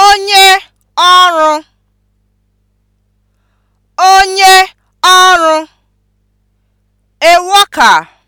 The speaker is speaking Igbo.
onye ọrụ onye ọrụ a worker